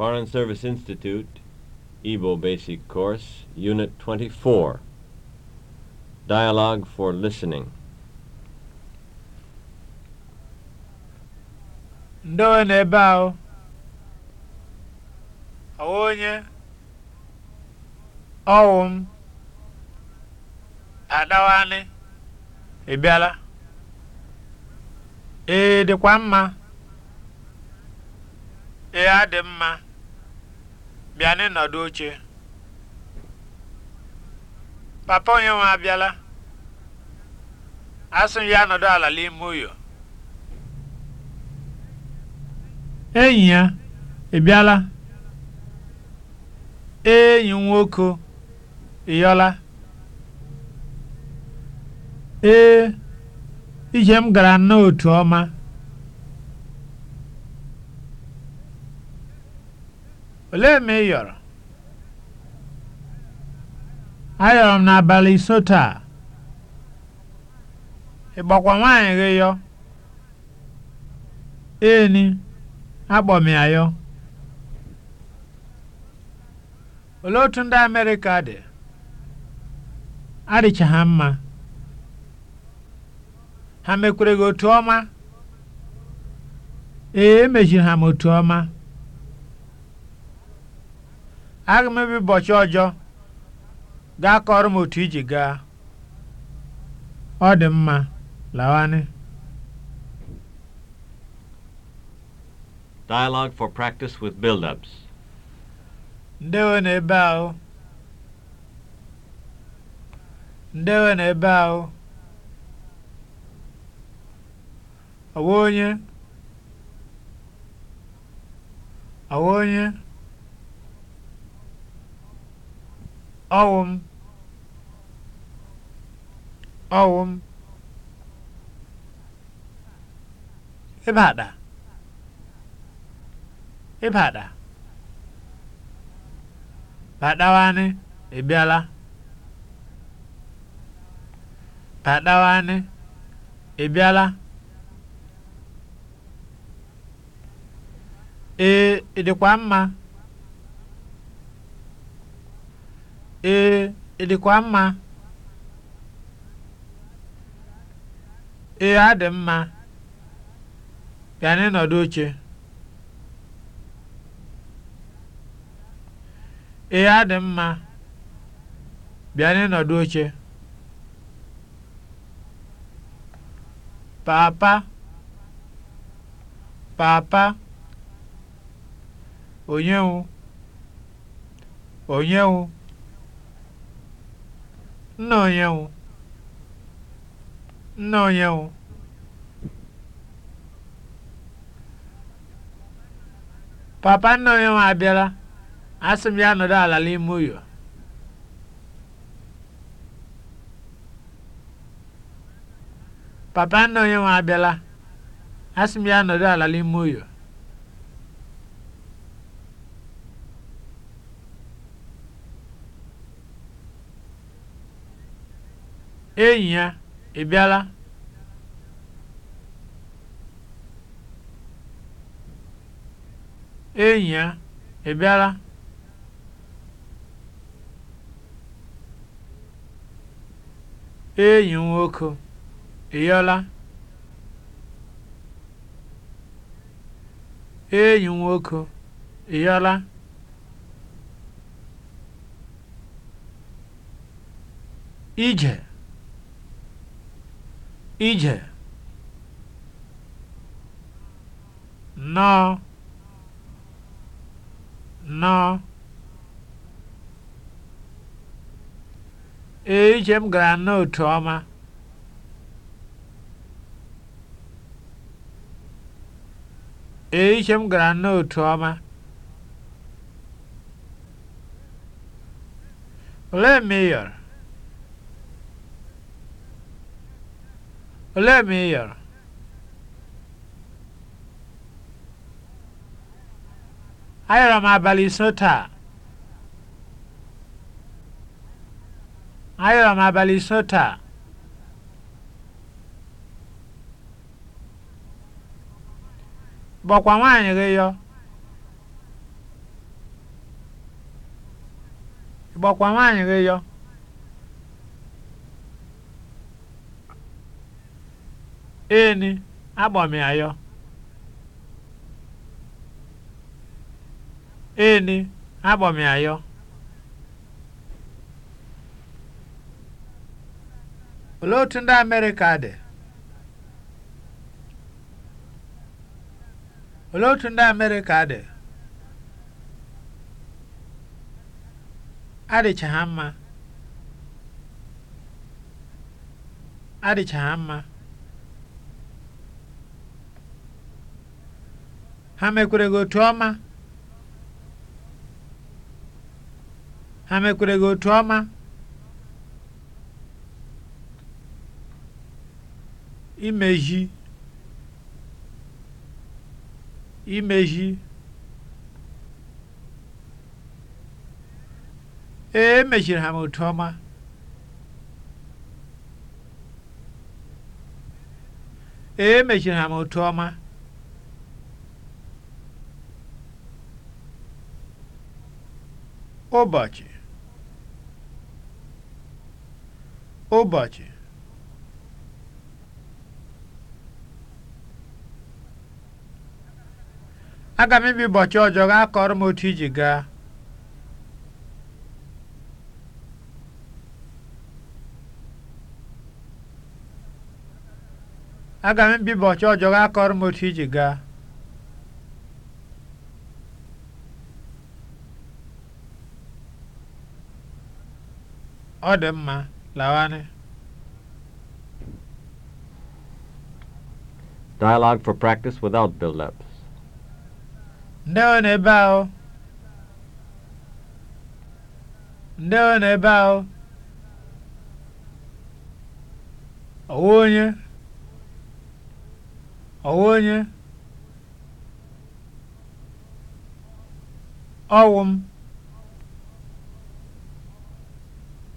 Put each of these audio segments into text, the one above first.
Foreign Service Institute, Igbo Basic Course, Unit 24, Dialogue for Listening. Ndewo na ebe ahụ, ọwa onye, ọwụ m, adawanị, ị bịala? Ee, dịkwa mma. Ee, adị mma. bịa n'ịnọdụ oche papa onye nwe abịala asị m ya nọdụ ala n'ime ụyọ enyi ya ị bịala enyi nwoke ịyọla ee ije m gara n'otu ọma Olee ma ị yọrọ? Ayọrọ m n'abalị iso taa. Ị gbakwa nwaanyị gị yọ? Eni, akpọ m ya yọ. Olee otu ndị Amerịka dị? Adịcha ha mma. Ha mekwere gị otu ọma? Ee, emechiri ha m otu ọma. aga m ebe ụbọchị ọjọọ gaa kọrọ m otu iji gaa ọ dị mma lawanị Dialogue for practice with build-ups. Ndewo na ebe ahụ. Ndewo na ebe ahụ. Ọwa onye. Ọwa onye. ọwụ m ọwụ m ịbada ịbada badawanị ebiala. badawanị ebiala. ee ịdịkwa mma Ee, ị mma? Ee, adị mma. bịa n'ịnọdụ oche. Ee, adị mma. bịa n'ịnọdụ oche. Papa, papa, onyewu, onyewu. Nna onye Papa nna onye nwe abịala, ya ala Papa onye nwe abịala, ya ala n'ime ụyọ. Enyi ya, ị bịala? Enyi ya, ị Enyi m nwoke, ị Enyi nwoke, ị Ije ije nnọọ nnọọ ee ije m gara otu ọma ee ije m gara ọma olee Ole ma ị yọrọ? Ayọrọ m abalị iso taa. Ayọrọ m abalị iso taa. Gbọkwa nwaanyị gị yọ. Gbọkwa nwaanyị gị yọ. eni agbamịayọ eni agbamịayọ olee otu ndị Amerịka dị olee otu ndị Amerịka dị adịcha ha mma adịcha ha mma ha mekwere otu ọma ha mekwere otu ọma imezi imezi ee emeziri ha m otu ọma ee emeziri ha m otu ọma ụbọchị ụbọchị aga m ebi ụbọchị ọjọọ gaa kọrọ m otu iji gaa aga m ebi ụbọchị ọjọọ gaa kọrọ m otu iji gaa Ọ dị mma, lawanị. Dialogue for practice without build-ups. Ndewo n'ebe ahụ. Ndewo n'ebe ahụ. Ọwa onye. Ọwa onye. Ọwụ m.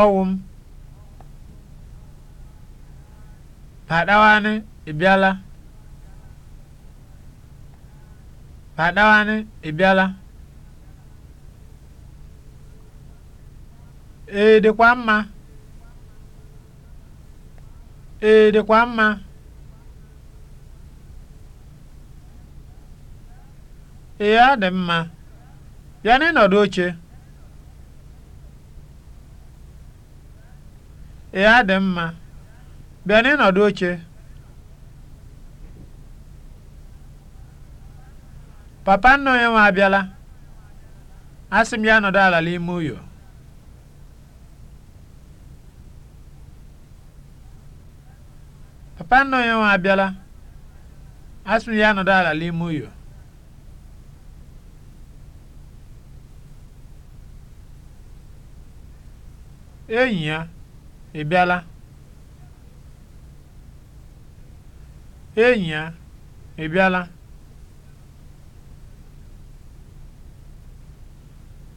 ọwụ m padawanị ịbịala padawanị ịbịala ee dịkwa mma ee dịkwa mma ee adị mma Ya bịa n'ịnọdụ oche ee adị mma bịa n'ịnọdụ oche papa nna onye nwe abịala asị m ya nọdụ ala n'ime uyo papa nna onye nwe abịala asị m ya nọdụ ala n'ime uyo enyi ya ị bịala enyi ya ị bịala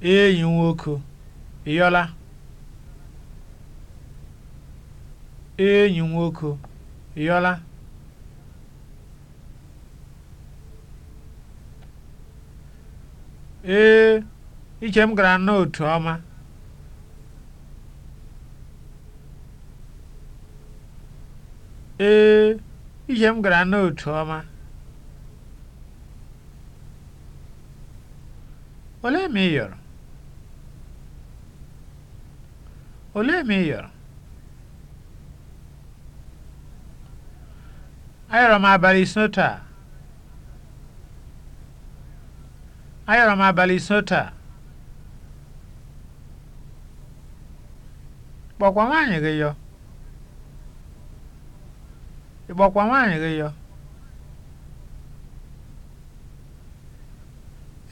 enyi nwoke ị yọla enyi nwoke ị yọla ee iche m gara n'otu ọma ee ihe m gara n'otu ọma olee ma ị yọrọ olee ma ị yọrọ ayọrọ m abalị ise taa ayọrọ m abalị ise taa kpọkwa nwaanyị gị yọ ị gbakwa nwaanyị gị yọ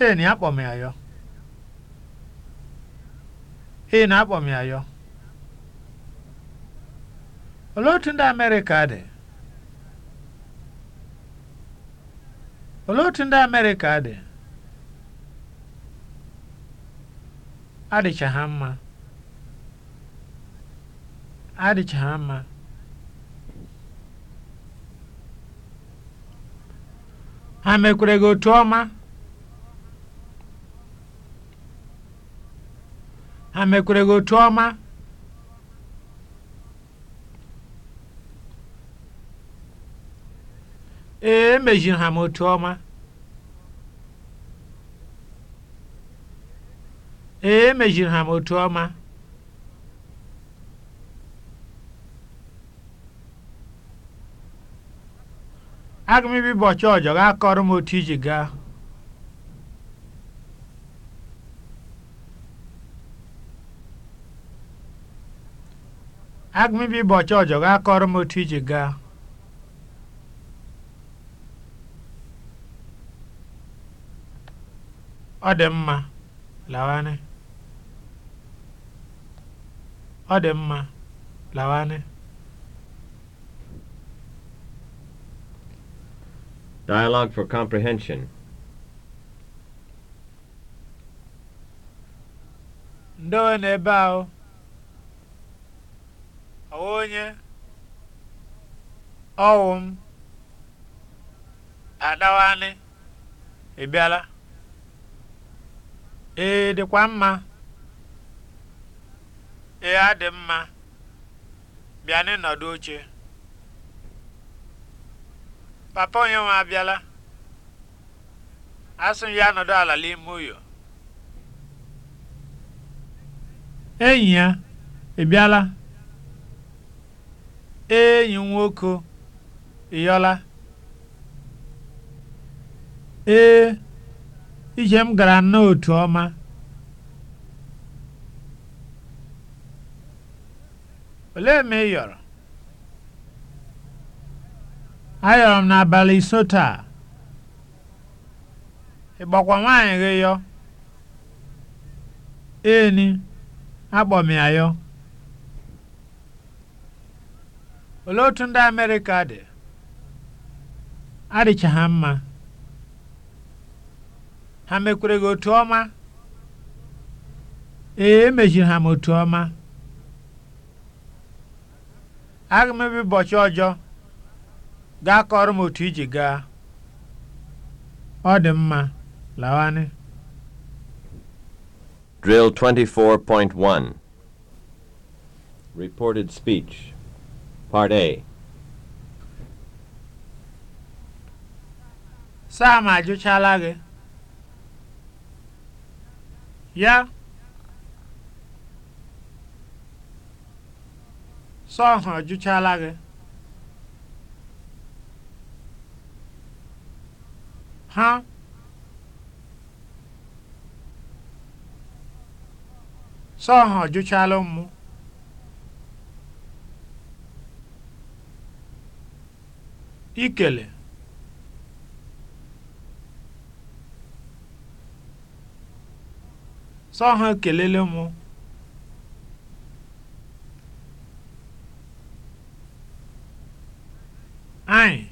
ee na akpọ m ya yọ ee na akpọ m ya yọ olee otu ndị amerịka dị olee otu ndị amerịka dị adịcha ha mma adịcha ha mma ha mekwere gị otu ọma ha mekwere gị otu ọma ee emejiri ha m otu ọma ee emejiri ha m otu ọma aga m ebi ọjọ ga akọrọ m otu iji gaa gaa ọ dị mma lawanị ọ dị mma lawanị Dialogue for Comprehension. Ndo n'ebe ahụ. Ọwụ onye. Ọwụ m. Adawanị. Ị bịala? dịkwa mma. Ee, adị mma. Bịa n'ịnọdụ oche. papa onye nwe abịala asị m ya nọdụ ala n'ime ụyọ enyi ya ị bịala enyi nwoke ịyọla ee ije m gara n'otu ọma olee ma ị yọrọ ayọrọ m n'abalị iso taa gbakwa nwaanyị gị yọ eni akpọ m ya yọ olee otu ndị Amerịka dị adịcha ha mma ha mekwere gị otu ọma ee emechiri ha m otu ọma aga m ebe ụbọchị ọjọọ gaa kọrọ m otu iji gaa ọ dị mma lawanị Drill 24.1 Reported Speech Part A Sam ajụchala gị ya Sam ajụchala gị ha sọ ha mụ ikele sọ ha e kelele mụ anyị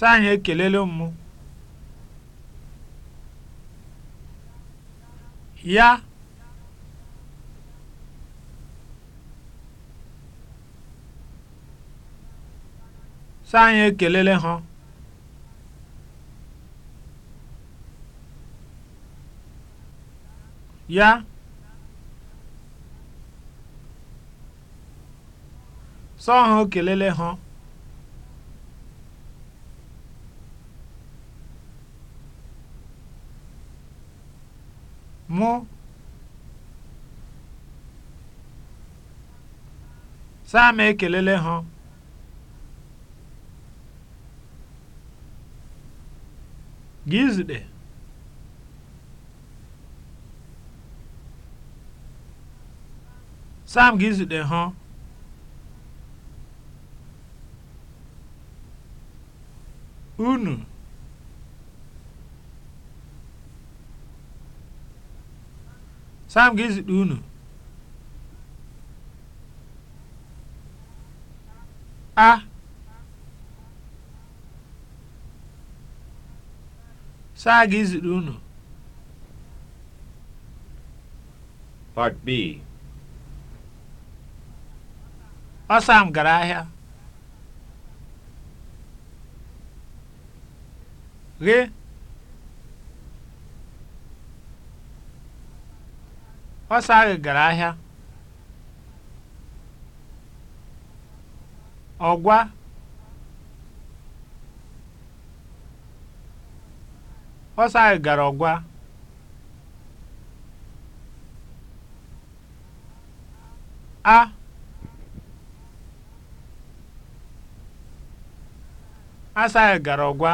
Sọ anyị ekelele mụ. Ya. Sọ anyị ekelele ha Ya. Sọ ha ekelele ha. も Sam ekelele ha gị zute Sam gị ha unu Sam ga-ezikpa unu a Sam ga-ezikpa unu Part B Ọ Sam gara ahịa ghe Ọsọ ahụ gara ahịa. Ọgwa ọsọ ahụ gara ọgwa. A Asaghị gara ọgwa.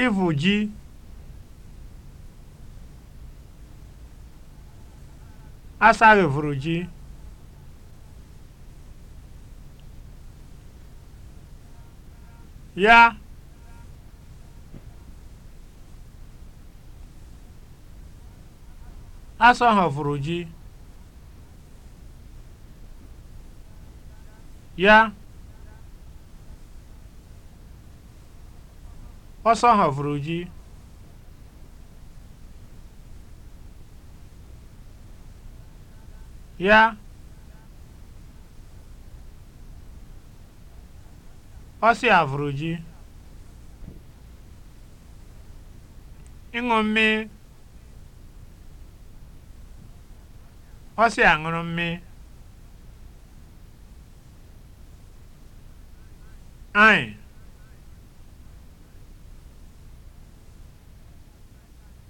ịvụ ji asaghị vụrụ ji ya asọghọ vụrụ ji ya ọsọ vụrụ ji ya ọsị vụrụ ji ịṅụ mmiri ọsị aṅụrụ mmiri anyị